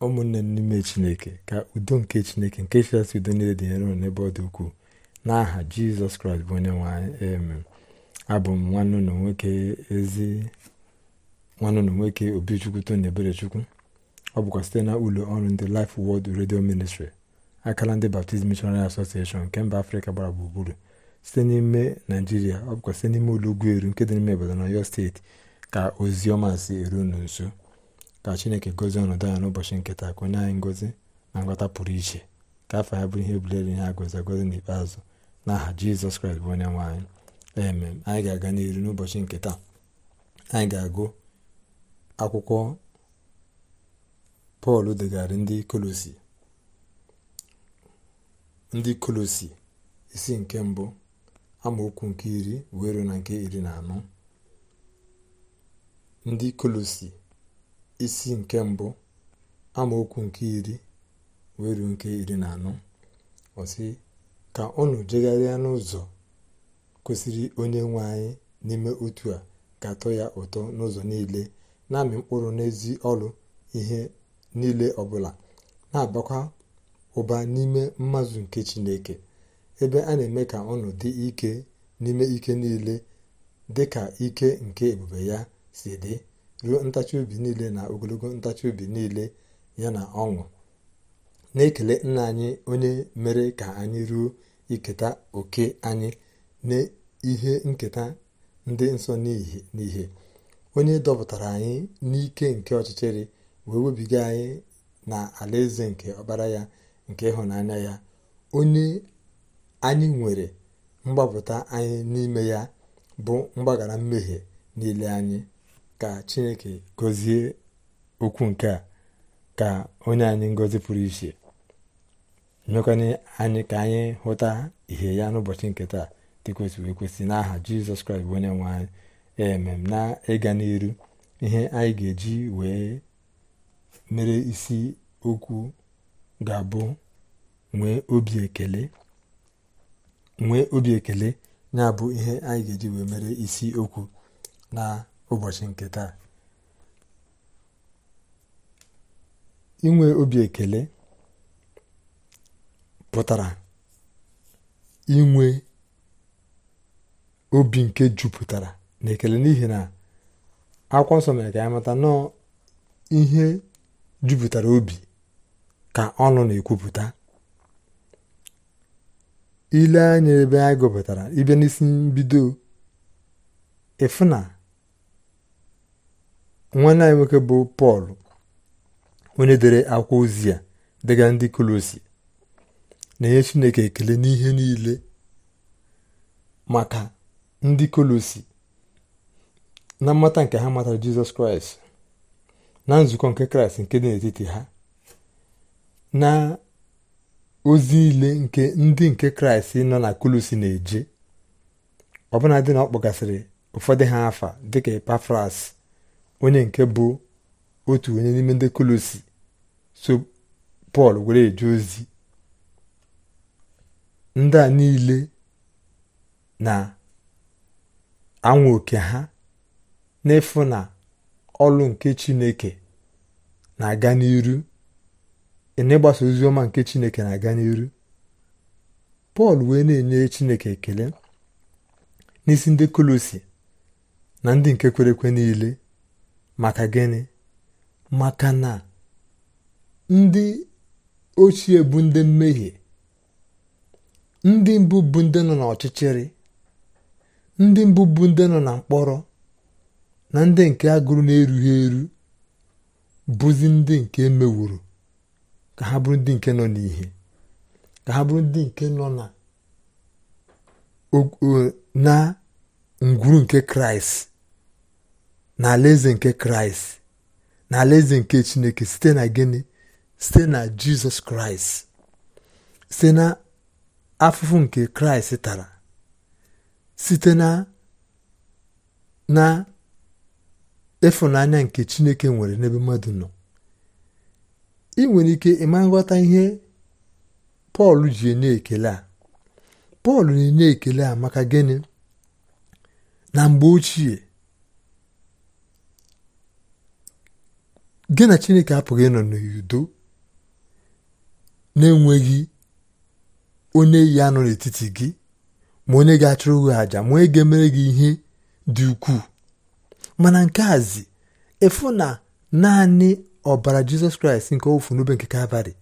ụmụnne m n'ime chineke ka udo nke chineke nke chịkasị udo niile dị nyere n'ebe ọ dị ukwuu n'aha jizọs kraịst bụ onye nwanyị emem abụ m nwanne ụlọ nwoke ezi nwanne ụlọ nwoke obichukwu tony eberechukwu ọ bụkwa site na ụlọ ọrụ ndị lif Word redio Ministry akala ndị Baptist Missionary Association nke mba afrịka gbara gburugburu site n'ime naijiria ọ bụkwa site n'ime ụlọ ugwu eru nke dị n'ime obodo na Ọyọ steeti ka ozi ọma si eru unu nso ka chineke gozie ọnọdụ ya n'ụbọchị nke taa ka onye anyị ngozi na nghọta pụrụ iche ka afọ ya bụrụ ihe bulere ihe agozi agozi n'ikpeazụ n'aha jizọs kraịst bụ onye nwaanyị anyị eme anyị ga-aga n'iru n'ụbọchị nke taa anyị ga-agụ akwụkwọ pọl degarị ndị kolosi ndị kolosi isi nke mbụ amaokwu nke iri wero na nke iri na anọ ndị kolosi isi nke mbụ amaokwu nke iri wee ruo nke iri na anọ ọsị ka unu jegharịa n'ụzọ kwesịrị onye nwe anyị n'ime otu a ga-atọ ya ụtọ n'ụzọ niile na-amị mkpụrụ n'ezi ọrụ ihe niile ọbụla na-abakwa ụba n'ime mmazụ nke chineke ebe a na-eme ka ọnụ dị ike n'ime ike niile dị ka ike nke ebube ya si dị ruo ntachi obi niile na ogologo ntachi obi niile ya na ọṅụ na-ekele nna anyị onye mere ka anyị ruo iketa oke anyị na ihe nketa ndị nsọ n'ihe onye dọpụtara anyị n'ike nke ọchịchịrị wee webiga anyị na alaeze nke ọbara ya nke ịhụnanya ya onye anyị nwere mgbapụta anyị n'ime ya bụ mgbaghara mmehie niile anyị ka chineke gozie okwu nke a ka onye anyị ngozi pụrụ iche mekwana anyị ka anyị hụta ihe ya n'ụbọchị nke taa kwesị kwesị n'aha jizọs kraịst onye nwe anyị emem na ịga n'iru ihe anyị ga-eji wee mere isi okwu ga-abụ nwee obi ekele nwee obi ya bụ ihe anyị ga-eji wee mere isi okwu na ụbọchị nke taa inwe obi ekele pụtara inwe obi nke jupụtara na ekele n'ihi na akwụkwọ nsọ mere ka ya mata nọọ ihe jupụtara obi ka ọnụ na-ekwupụta ile anya ebe anyị gụpụtara ibe n'isi mbido ịfụ na nwanne anyị nwoke bụ pọl onye dere akwa ozi a dịga ndị kolosi na-enye chineke ekele n'ihe niile maka ndị kolosi na mmata nke ha matara jizọs kraịst na nzukọ nke kraịst nke dị n'etiti ha na ozi niile nke ndị nke kraịst nọ na kolosi na-eje ọbụna dị na ọ kpọgasịrị ụfọdụ ha afa dịka epafras onye nke bụ otu onye n'ime ndị kolosi so pọl were eje ozi ndị a niile na-anwa oke ha n'efu na ọlụ nke chineke na-aga n'iru n'ịgbasa ozi ọma nke chineke na-aga n'iru pọl wee na-enye chineke ekele n'isi ndị kolosi na ndị nke kwere niile maka gịnị maka na ndị ochie bụ ndị mmehie ndị mbụ bụ ndị nọ n'ọchịchịrị ndị mbụ bụ ndị nọ na mkpọrọ na ndị nke agụrụ na-erughị eru bụzi ndị nke emewuru ka ha bụrụ ndị nke nọ n'ihe ka ha bụrụ ndị nke nọ na na ngwuru nke kraịst na alaeze nke kraịst na alaeze nke chineke site na gịnị site na jizọs kraịst site na afụfụ nke kraịst tara site na na ịfụnanya nke chineke nwere n'ebe mmadụ nọ ị nwere ike ịma nghọta ihe pọl ji enye ekele a pọl na-enye ekele a maka gịnị na mgbe ochie gị na chineke apụghị ịnọ n'udo na-enweghị onye yi anọ n'etiti gị ma onye ga-achụrụ gị àjà ma onye ga-emere gị ihe dị ukwuu mana nke azi efu na naanị ọbara jizọs kraịst nke ofu n'obe nke abalị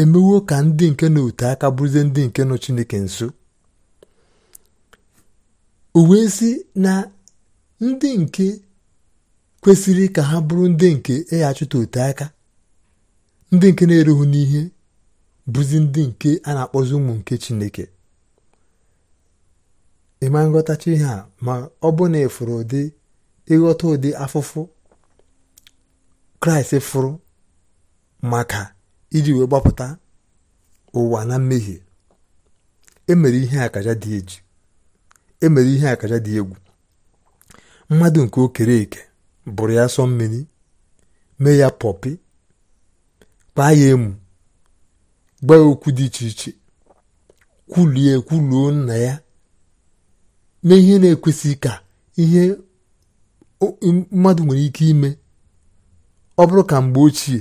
emewo ka ndị nke na otu aka bụrụzie ndị nke nọ chineke nso o wee na ndị nke kwesịrị ka ha bụrụ ndị nke ịghachụta e ote aka ndị nke na-erughị n'ihe bụzi ndị nke a na-akpọzi ụmụ nke Chineke ịma nghọtacha ihe a ma ọ bụ na ịfụrụ ụdị ịghọta ụdị afụfụ Kraịst fụrụ maka iji wee gbapụta ụwa na mmehie emere ihe akaja dị eji emere ihe akaja dị egwu mmadụ nke okere eke bụrụ ya sọ mmiri mee ya pọpi kpaa ya emu gbaa ya okwu dị iche iche kwulie kwuluo nna ya mee ihe na-ekwesịghị ka ihe mmadụ nwere ike ime ọ bụrụ ka mgbe ochie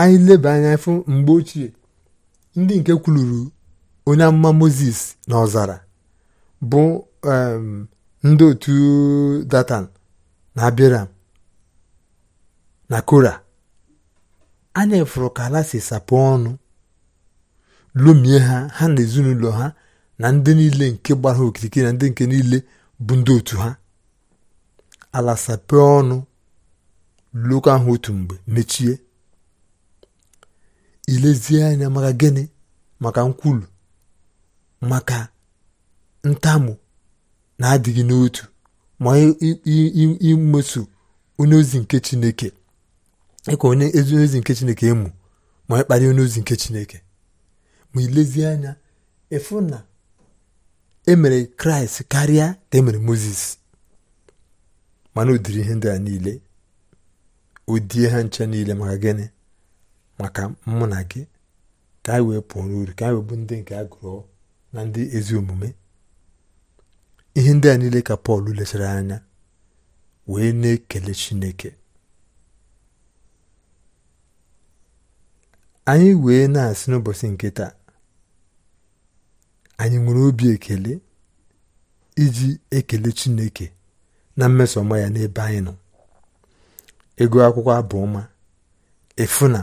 anyị leba anya fụ mgbe ochie ndị nke kwuluru onye amụma moses na ọzara bụ ndị otu datan na abiram na kora anya ka ala si sapụ ọnụ lomie ha ha na ezinụlọ ha na ndị niile nke gbara ha okirikiri na ndị nke niile bụ ndị otu ha ala sapụ ọnụ loko ahụ otu mgbe mechie ilezie anya maka gịnị maka nkwulu maka ntamu na-adịghị n'otu ma imeso onyeozi ozi nke chineke ịkọ onye ozi nke chineke ịmụ ma ịkparị onyeozi ozi nke chineke ma ilezie anya efu na emere kraịst karịa ka emere moses mana udiri ihe ndị a niile odie ha nche niile maka gịnị maka mụ na gị ka anyị wee pụọ n'uru ka anyị wee bụ ndị nke a na ndị ezi omume ihe ndị a niile ka pọl lechara anya wee na-ekele chineke anyị wee na-asị n'ụbọchị nke taa anyị nwere obi ekele iji ekele chineke na mmeso ọma ya n'ebe anyị nọ ego akwụkwọ abụọma efuna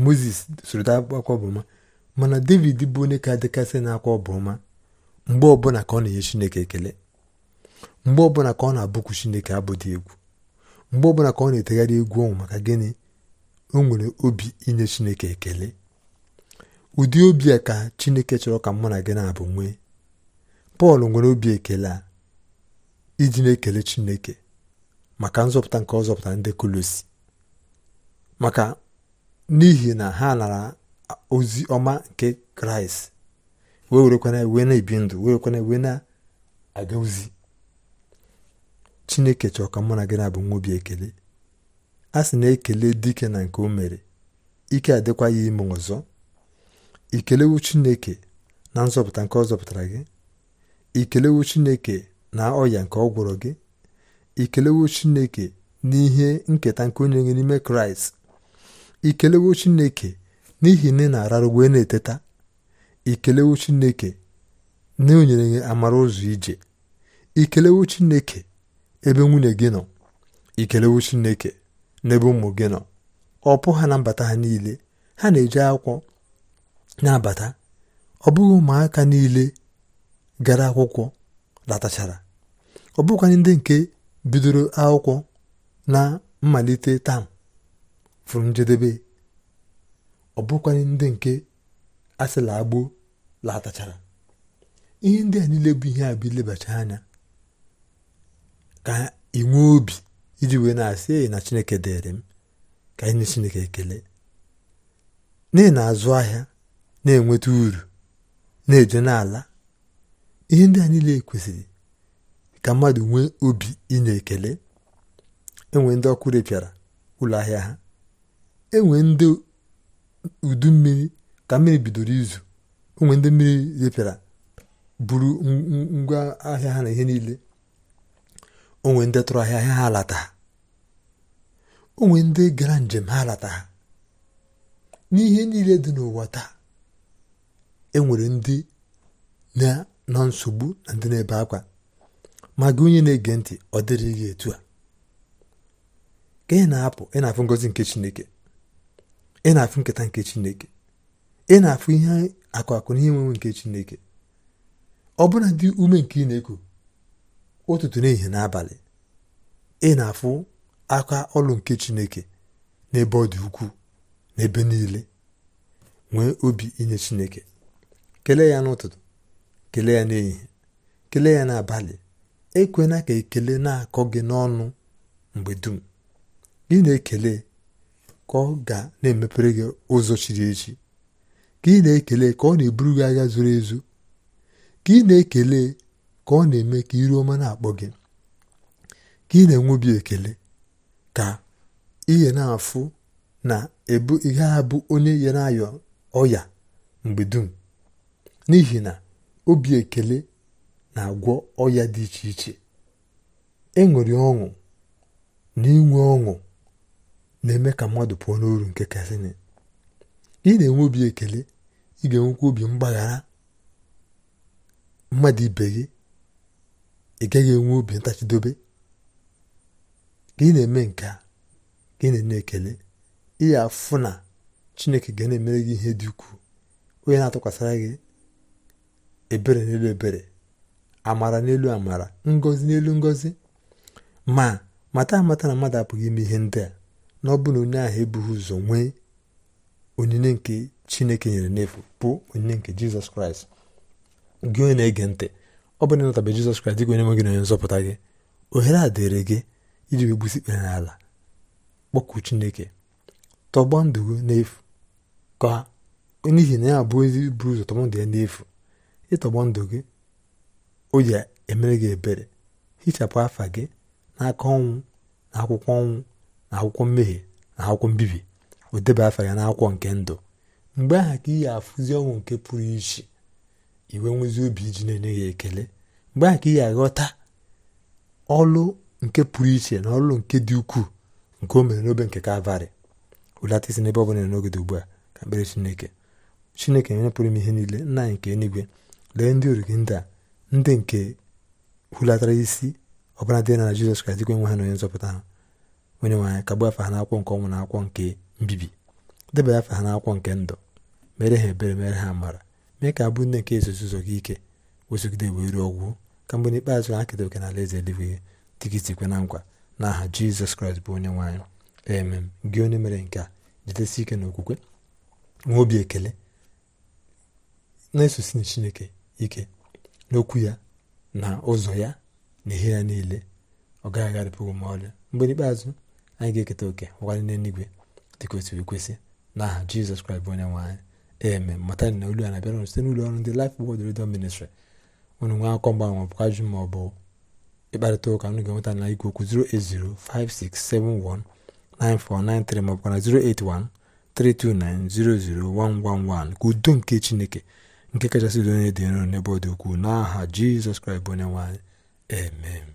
moses soro akwụkwọ abụ mana david bụ onye ka dịkasị na akwa ọbụọma mgbe ọbụla ka ọ na-enye chineke ekele mgbe ọbụla ka ọ na-abụkwu chineke abụdị egwu mgbe ọbụla ka ọ na-etegharị egwu ọnwụ maka gịnị o nwere obi inye chineke ekele ụdị obi a ka chineke chọrọ ka mụ na gị na-abụ nwee pọl nwere obi ekele a iji na-ekele chineke maka nzọpụta nke ọzọpụta ndị kolosi maka n'ihi na ha nara ozi ọma nke kraịst wee werekwana wee na-ebi ndụ werekwana wee na-aga ozi chineke chọọ ka mụ na gị na-abụ nwa obi ekele a sị na-ekele dike na nke o mere ike adịkwa ya ime ọzọ ikelewu chineke na nzọpụta nke ọ zọpụtara gị ikelewu chineke na ọya nke ọ gwọrọ gị ikelewu chineke n'ihe nketa nke onye gị n'ime kraịst ikelewo chineke n'ihi na ị na-ararụ wee na-eteta ikelewo chineke na enyere amara ụzọ ije ikelewo chineke ebe nwunye gị nọ ikelewo na ebe ụmụ gị nọ ọpụ ha na mbata ha niile ha na-eji akwụkwọ na-abata ọ bụghị ụmụaka niile gara akwụkwọ latachara ọ bụghịkwa ndị nke bidoro akwụkwọ na mmalite taa fụrụ njedebe ọ bụghịkwa ndị nke asịla la latachara ihe ndị a niile bụ ihe a bụ ilebacha anya ka inwe obi iji wee na-asị eyi na chineke dịrị m ka anyị chineke ekele n'ihi na-azụ ahịa na-enweta uru na-eje n'ala ihe ndị a niile kwesịrị ka mmadụ nwee obi inye ekele enwe ndị ọkụ repịara ụlọ ahịa ha enwe ndị udu mmiri ka mmiri bidoro izu onwe ndị mmiri repịara buru ngwa ahịa ha na ihe niile onwe ndị tụrụ ahịa ahịa ha alata onwe ndị gara njem ha alata ha n'ihe niile dị n'ụwa taa enwere ndị na nsogbu na ndị na-ebe akwa ma gị onye na-ege ntị ọ dịrị gị etu a ka ị na-apụ ị na-afụ ngọzi nke Chineke ị na-afụ nketa nke Chineke ị na-afụ ihe akụ akụ na nke chineke ọ bụla dị ume nke ị na-eku ụtụtụ n'ehihie n'abalị ị na-afụ aka ọlụ nke chineke n'ebe ọ dị ukwuu n'ebe niile nwee obi inye chineke kelee ya n'ụtụtụ kelee ya n'ehihie kelee ya n'abalị ekwena ka ekele na-akọ gị n'ọnụ mgbe dum gị na-ekele ka ọ ga na-emepere gị ụzọ chiri echi ka ị na-ekele ka ọ na-eburu gị agha zuru ezu ka ị na-ekele ka ọ na-eme ka iru ọma na-akpọ gị ka ị na-enwe obi ekele ka ihe na-afụ na ebu ihe a onye ya na ọya mgbe dum n'ihi na obi ekele na-agwọ ọya dị iche iche ịṅụrị e ọṅụ na inwe ọṅụ na-eme ka mmadụ pụọ n'oru nke kasịnị ị na-enwe obi ekele ị ga-enwekwa obi mgbaghara mmadụ ibe gị ị gaghị enwe obi ntachidobe ka ị na-eme nke a ka ị na eme ekele ị ga-afụ na chineke ga na-emere gị ihe dị ukwuu onye na-atụkwasịra gị ebere n'elu ebere amara n'elu amara ngozi n'elu ngozi ma mata amata na mmadụ apụghị ime ihe ndị a na ọ bụrụ na onye ahụ ebughị ụzọ nwee onyinye nke chineke nyere n'efu bụ onyinye nke jizọs kraịst gị onye na-ege ntị ọ bụrụ na ịnatabe jizọs kraịst dịka onye nwe gị na onye nzọpụta gị ohere a dịrị gị iji wee gbusi kpere n'ala kpọkụ chineke tọgbọ ndụ gị n'efu ka n'ihi na ya abụ ezi buru ụzọ tọgbọ ndụ ya n'efu ịtọgbọ ndụ gị o ji emere gị ebere hichapụ afa gị n'aka ọnwụ na akwụkwọ ọnwụ na akwụkwọ mmehie na akwụkwọ mbibi o ya n'akwọ nke ndụ mgbe aha ka iyi afụzi ọnwụ nke pụrụ iche iwe nwezi obi iji na-enye ya ekele mgbe aha ka ihe aghọta ọlụ nke pụrụ iche na ọlụ nke dị ukwuu nke o mere n'obe nke kalvarị hụlata isi n'ebe ọ bụla n'oge dị ugbu a ka mkpere chineke chineke onye m ihe niile nna anyị nke eluigwe lee ndị originda ndị a ndị nke hulatara isi ọbụla dị na Jizọs Kraịst dịkwa enwe ha na onye nzọpụta ha onye nwe anyị kagbuo afa ha n'akwọ nke ọnwụ na nke mbibi debanye afa ha n'akwụkwọ nke ndụ mere ha ebere mere ha amara mee ka abụ nne nke ezuzi gị ike wezụgide wee ruo ọgwụ ka mgbe n'ikpeazụ ha keta oke n'ala eze eluigwe dịgịzikwe na nkwa na aha jizọs kraịst bụ onye nwe ee emem gị onye mere nke a jidesi ike na okwukwe nwee obi ekele na-esosi na chineke ike n'okwu ya na ụzọ ya na ihe ya niile ọ gaghị agharịpụghị ma ọlị mgbe n'ikpeazụ anyị ga-eketa oke ụgharị n'eluigwe dị kwesịrị ekwesị n'aha jizọs kraịst bụ onye nwaanyị eme mata na olu a na-abịara site n'ụlọ ọrụ ndị Life Word Radio Ministry unu nwee akọ mgbanwe ma ọ bụ ịkparịta ụka nụ ga-enweta na igwe okwu 08056719493 ma ọ bụkwa na 08132900111 ka udo nke chineke nke kachasị udo onye dị nro n'ebe ọ dị ukwuu n'aha jizọs kraịst bụ onye nwaanyị eme.